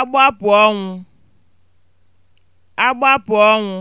agbapụ ọnwụ agbapụ ọnwụ